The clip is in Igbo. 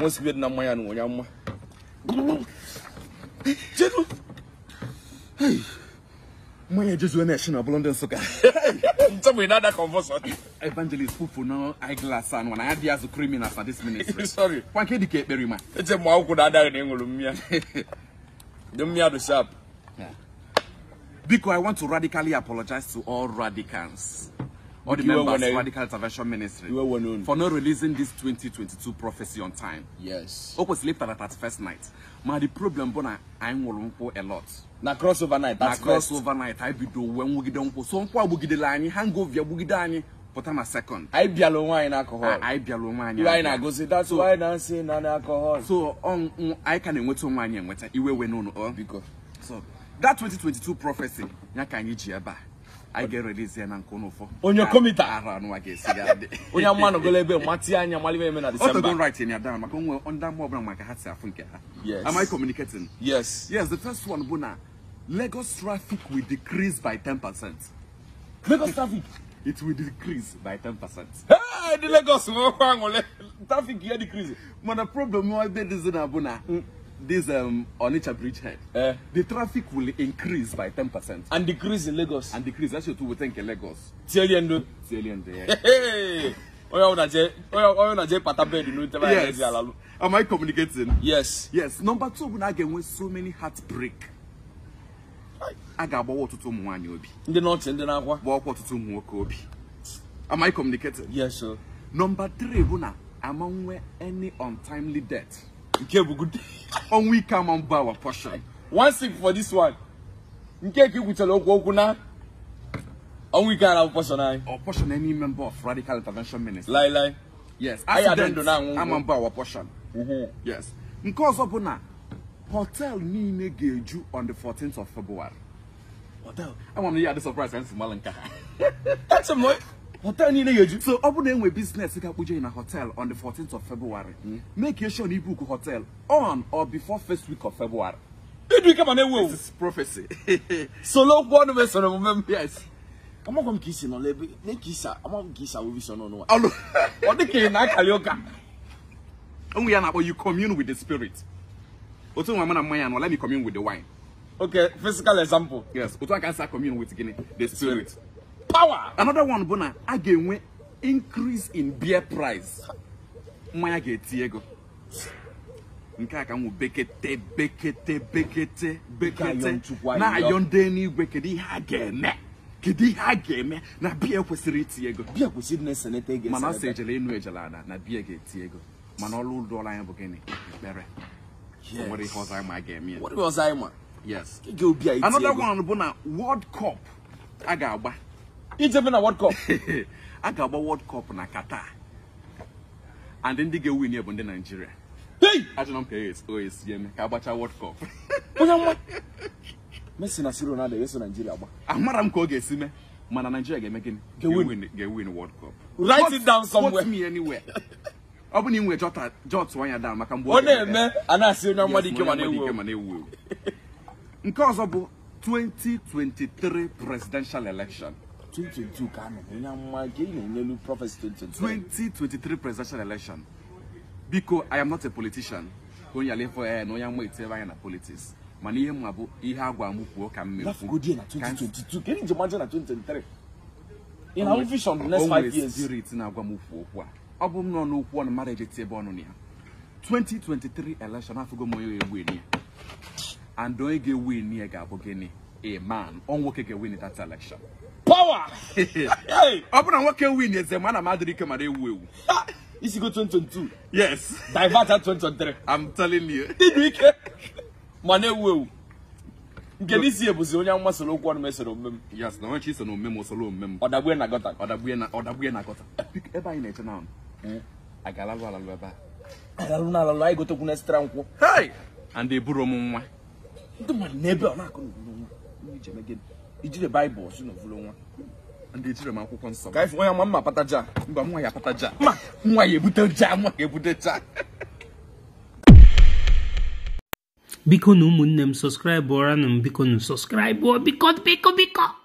wọn si bi na no wọn ya mma jesu hey mma ya jesu na ehina blondo nsuka ntabu ina da confusion evangelist fufu no eyeglass and when i had the as a criminal for this ministry sorry wan ke dike ekpere ma eje mo awu da da na enwuru mmia dem mmia do sharp yeah. Because I want to radically apologize to all radicals all the members of Radical Intervention Ministry for not releasing this 2022 prophecy on time. Yes. Open sleep at that first night. My the problem bona I'm a lot. Na crossover night. Na crossover overnight. I be do when we get on so on kwa bugide lani hangover bugide ani put on a second. I be alone wine alcohol. I be alone wine. You ain't go say that's so, why dancing and alcohol. So on um, um, I can't wait on wine and wait. Iwe we no no. Oh. Because so that 2022 prophecy nyaka anyị ji ebe a I agye release yɛ na nkonofo onye komita ara no agye sigade On your no gola ebe mati anya mali be na december don't write in your down maka onwe onda mo obra maka hatse afunke ha yes am i communicating yes yes the first one bona lagos traffic will decrease by ten percent. lagos traffic it will decrease by ten percent. Hey, the Lagos, traffic here decrease. But the problem is that this is not this um, Onitsha bridgehead, uh, eh. the traffic will increase by ten percent And decrease in Lagos. And decrease. That's your two. we think in Lagos. Tieliendo. Tieliendo, yeah. Hey! yes. Am I communicating? Yes. Yes. Number two, we again with so many heartbreak. I got what to obi. Wanyobi. The not in the Nahua. Walk what to Tom Wokobi. Am I communicating? Yes, sir. Number three, Buna, among any untimely death. Nkebo, good On we come and buy our portion. One sip for this one. Nkeki kutelo kukuna. On we can our portion. I. Our portion, any member of Radical Intervention minister. Lie, lie. Yes. Accident, I don't know. I'm on buy our portion. Mm -hmm. Yes. Because of na hotel ni ne geju on the fourteenth of February. Hotel. I want to hear the surprise and Malanka. That's a month hotel niile yeju so ọ bụrụ na enwe biznes ga-akpụje na hotel on the fourteenth of February hmm. make you sure na ibuku hotel on or before first week of February ịdụ e ike mana ewu ewu this is prophecy solo okwu ọnụ mesoro omume m yes amagwa m ka isi nọ n'ebe na ka isi amagwa ka isi awụbi so n'ọnụ ọlụ ọ dị ka ị na-akali ụka onwe ya na-akpọ you commune with the spirit otu nwa m mmanya anọ let me commune with the wine okay physical example yes otu aka nsa commune with gini the spirit power. Another one bu na a ga-enwe increase in beer price. Mmanya ga-eti ego. Nke a ka bekete bekete bekete bekete na-ayọ ndị n'igwe kedu ihe a ga-eme ihe a ga-eme na beer kwesiri iti ego biya kwesịrị na mana ọsọ ejele enu ejele na na beer ga-eti ego mana ọrụ ụlọ anyị bụ gịnị ekpere nwere ihe ọzọ anyị ma ga-eme ya yes another one bụ na world cup a ga-agba ijefe na world cup a ga-agba world cup na qatar and ndị ga-ewin bụ ndị naijiria ajụna m ka oesi e eme ka agbachaa world cup onye nwa messi na si ronaldo ga-eso naijiria gba amara m ka ga-esi mee mana nigeria ga-eme gịnị ga-ewin world cup write it down somewhere me anywhere ọ bụ na ị nwe jọtụ anya down maka mgbe ọ na-eme a na-asị onye mmadụ ike mana ewu ewu nke ọzọ bụ 2023 presidential election 2022 ka ị na-enye ya mma gị na-enyelu prọfesi 2023 presidential election biko i am not a politician Onye ala alefọ eh, ya na onye mma etinyere anya na politics mana ihe mma bụ ihe a gwa m kwuo ka m mekwu onwere spirit na-agwa m okwu okwu ọ bụ m nọ n'okwu ọnụ mara eji tie ebe ọnụ ya 2023 election afụgo m ewu eni and onye ga-abụ gịnị a man ọ nwoke ga-win that election power ọ bụrụ na nwoke win eze ma ana m adịrị ike mara ewu ewu isi go 2022 yes divert 23. 2023 i'm telling you ịdị ike ma na-ewu ewu nke n'isi ebuzi onye nwa soro okwu ọnụ esoro omume m yes na onyechi iso na omume m osoro omume m ọdagbue na gọta ọdagbue na na gọta ebe anyị na-eche na hmm. agalalụ alalụ ebe a alalụ na alalụ anyị gotekwu na esitara nkwụ and eburo m nwa ndị mmadụ n'ebe ọ na-akụ n'obodo nwa ijire baịbụl si n'ovulu nwa ndị ejire m akwụkwọ nsọ ka ife nwa mma pataja mba nwa ya pataja mma nwa ya ebute ja nwa ya ebute ja biko na ụmụnne m sọskraịbụranụ m biko na sọskraịbụ biko biko biko